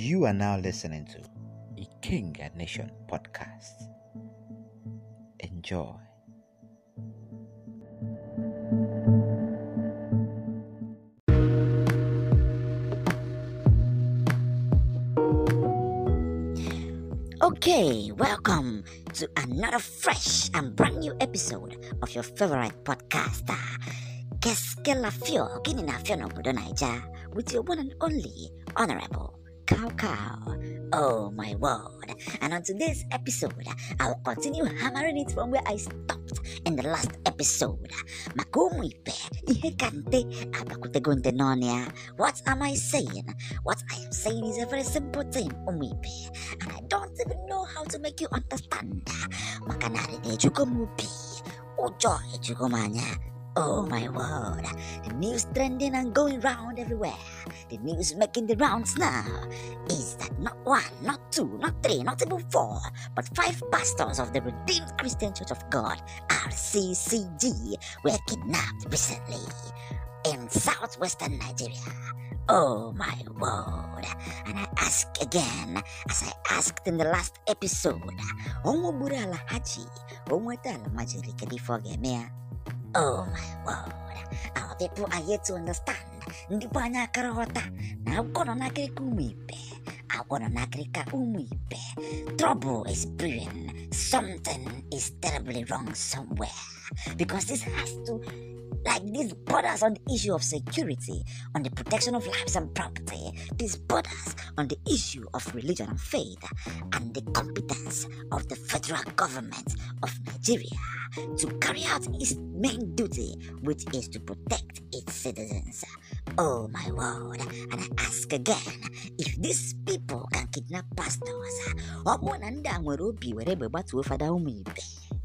You are now listening to the King and Nation podcast. Enjoy. Okay, welcome to another fresh and brand new episode of your favorite podcaster. keskela fio? Kinina fio obodo Naija with your one and only honorable Cow Cow. Oh my word. And on today's episode, I'll continue hammering it from where I stopped in the last episode. ikpe, ihe kante, abakutego ndenonia. What am I saying? What I am saying is a very simple thing, umwipe. And I don't even know how to make you understand. Makanari nejuko mupi. Ujo ejuko Oh my word, the news trending and going round everywhere. The news making the rounds now is that not one, not two, not three, not even four, but five pastors of the Redeemed Christian Church of God, RCCG, were kidnapped recently in southwestern Nigeria. Oh my word. And I ask again, as I asked in the last episode, Onwobura Alhaji, Onweta Almajiri, before Gemea. Eh? Oh my word! Our people are yet to understand. Ndị bụ anyị akara ghọta na agwọ nọ n'akịrịka ụmụ ibe agwọ nọ n'akịrịka ụmụ ibe trouble is brewing something is terribly wrong somewhere because this has to Like this borders on the issue of security, on the protection of lives and property. This borders on the issue of religion and faith, and the competence of the federal government of Nigeria to carry out its main duty, which is to protect its citizens. Oh my word! And I ask again, if these people can kidnap pastors, ọ bụ na ndị a obi were fada ibe?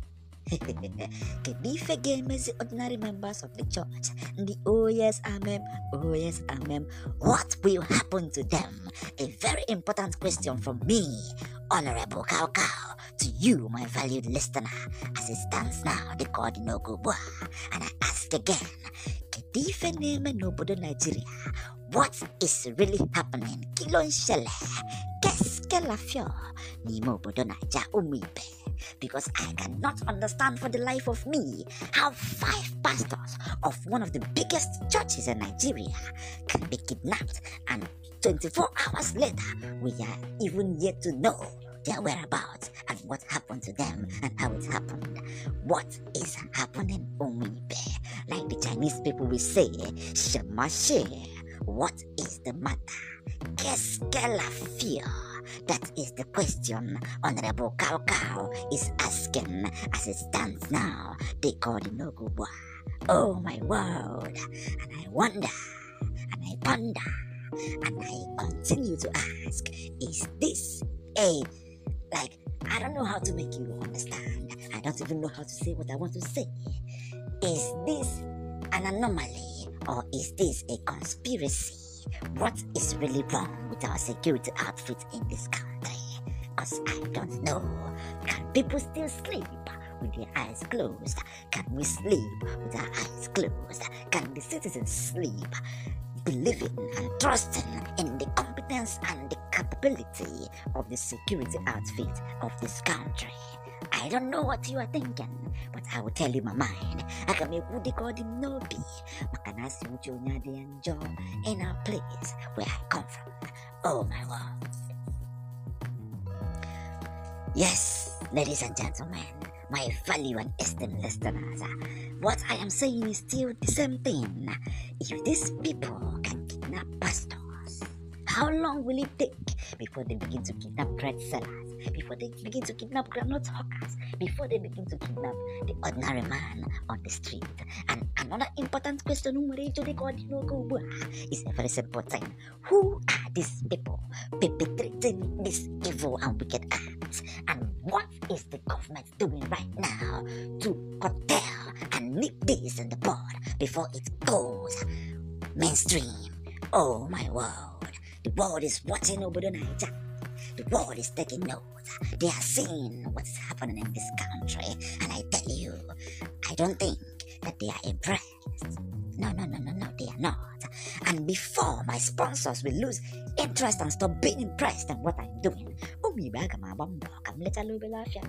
okay, ife ga-emezi ordinary members of the church. The oh yes, amen, oh yes, amen. What will happen to them? A very important question from me, Honorable Cow to you, my valued listener, as it stands now, the God no Gubwa. And I ask again, Kedife Neme Nobodo Nigeria, what is really happening? Kilon Shele, Keske Lafio, Nimo Bodo Naija Umibe. because I cannot understand for the life of me how five pastors of one of the biggest churches in Nigeria can be kidnapped and 24 hours later we are even yet to know their whereabouts and what happened to them and how it happened. What is happening, Omibe? Like the Chinese people will say, Shema What is the matter? Qu'est-ce That is the question Honorable Cow Cow is asking as it stands now. They call the Noguwa. Oh my world! And I wonder, and I ponder, and I continue to ask, is this a like I don't know how to make you understand. I don't even know how to say what I want to say. Is this an anomaly or is this a conspiracy? what is really wrong with our security outfit in this country? as I don't know. Can people still sleep with their eyes closed? Can we sleep with our eyes closed? Can the citizens sleep believing and trusting in the competence and the capability of the security outfit of this country? I don't know what you are thinking, but I will tell you my mind. I can make Woody Gordon no be. Makanasi Uchonya de enjoy in a place where I come from. Oh my lord. Yes, ladies and gentlemen, my value and esteemed listeners, what I am saying is still the same thing. If these people can kidnap pastors, how long will it take before they begin to kidnap bread sellers? before they begin to kidnap groundnut hawkers, before they begin to kidnap the ordinary man on the street. And another important question is ah. a very important thing. Who are these people perpetrating this evil and wicked acts? And what is the government doing right now to curtail and nip this in the bud before it goes mainstream? Oh my world. The world is watching Obodo Naija. The world is taking note. They are seeing what's happening in this country. And I tell you, I don't think that they are impressed. No, no, no, no, no, they are not. And before my sponsors will lose interest and stop being impressed in what I'm doing, umibe aga m agba mbọ ka m letala obere afịa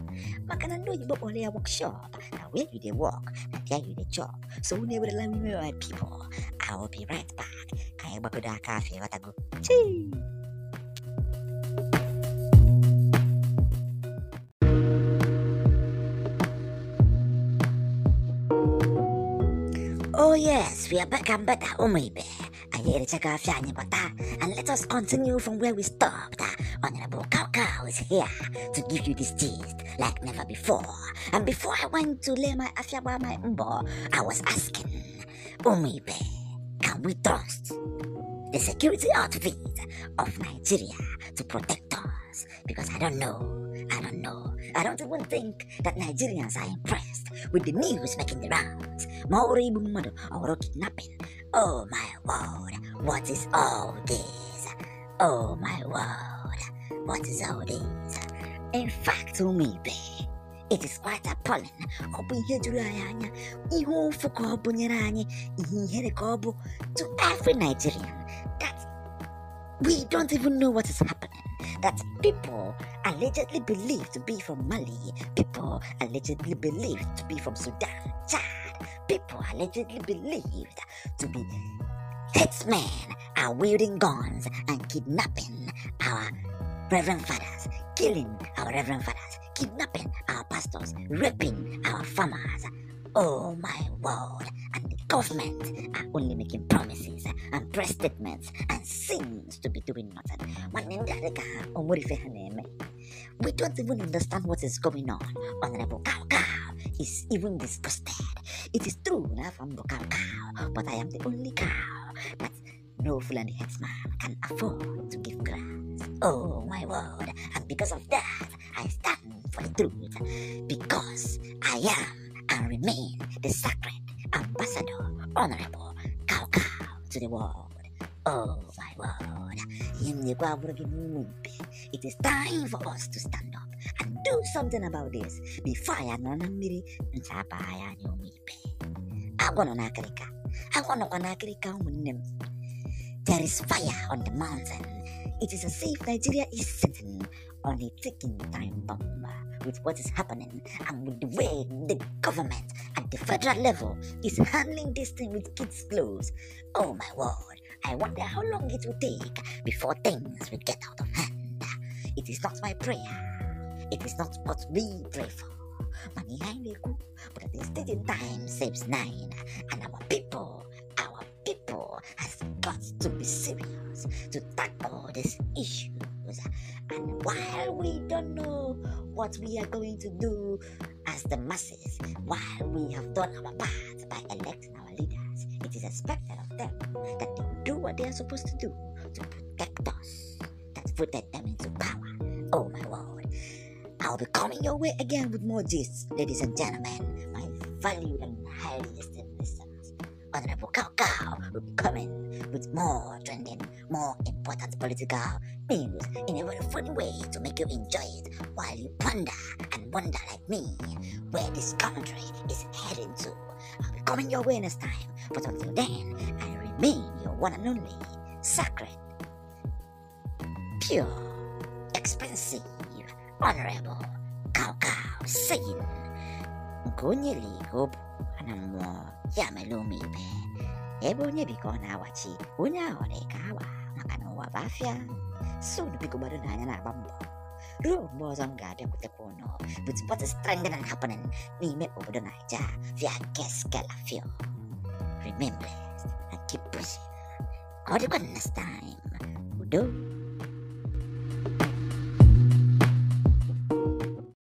maka na ndị oyibo workshop na where you dey work na there you dey job so unu ewerela wime my people I will be right back ka anyị gbagodo aka afịa yes, we are back ah, oh and better. Umibe. Ayericha anyị Bata. And let us continue from where we stopped. Ah. Honorable cowcow is here to give you this gist like never before. And before I went to lay my Afyaba my mbọ, I was asking, ibe, oh can we trust the security outfit of Nigeria to protect us? Because I don't know. I don't I don't even think that Nigerians are impressed with the news making the rounds. Maori Bumodo or kidnapping. Oh my word, what is all this? Oh my word, what is all this? In fact, ibe it is quite appalling. Ọ bụ ihe juru anyị anya, ihe ụfụ ka ọ nyere anyị, ihe ihere ka ọ bụ to every Nigerian that we don't even know what is happening. that people allegedly believed to be from Mali, people allegedly believed to be from Sudan, Chad, people allegedly believed to be herdsmen are wielding guns and kidnapping our reverend fathers, killing our reverend fathers, kidnapping our pastors, raping our farmers. Oh my word! government are ah, only making promises ah, and press statements and seems to be doing nothing. We don't even understand what is going on. Honorable Cow Cow is even disgusted. It is true now from the cow cow, but I am the only cow that no Fulani headsman can afford to give grass. Oh my word, and because of that, I stand for the truth because I am and remain the sacred ambasador, honorable, Cao Cao to the world. Oh my word, in the it is time for us to stand up and do something about this. fire I na mmiri, ntabaya na omipe. Agwọ nọ n'akịrịka, agwọ nọkwa n'akịrịka ụmụnne m. There is fire on the mountain. It is a safe Nigeria is sitting on a ticking time bomb. with what is happening and with the way the government at the federal level is handling this thing with kids' clothes Oh my word, I wonder how long it will take before things will get out of hand. It is not my prayer, it is not what we pray for. But at the stated time saves nine, and our people, our people has got to be serious to tackle this issue. what we are going to do as the masses while we have done our part by electing our leaders. It is expected of them that they do what they are supposed to do to protect us that voted them into power. Oh my word. I'll be coming your way again with more gist, ladies and gentlemen, my valued and highly esteemed. Honorable Cao Cao will be coming with more trending, more important political news in a very funny way to make you enjoy it while you ponder and wonder like me where this country is heading to. I'll be coming your way next time, but until then, I remain your one and only sacred, pure, expensive, honorable cow cow saying, Gonyeli Hobo. na-ahụ mmụọ ya mere ụmụ ibe ebe onye bi ka ọ na-awachi onye ahụ dị ka awa maka na ụwa bụ afịa sod biko gbado na anya na-agba mbọ ruo mgbe ọzọ m ga-abịakwutekwa ụnụ but what is trending and happening n'ime obodo naija via geskela fil remember and keep pushing ọ dịkwa next time